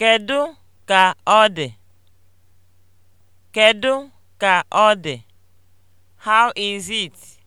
Kedu ka ọ dị? ka ọ dị? How is it?